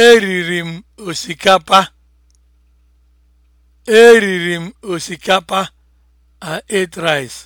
Eriri m osikapa. Eriri m rice.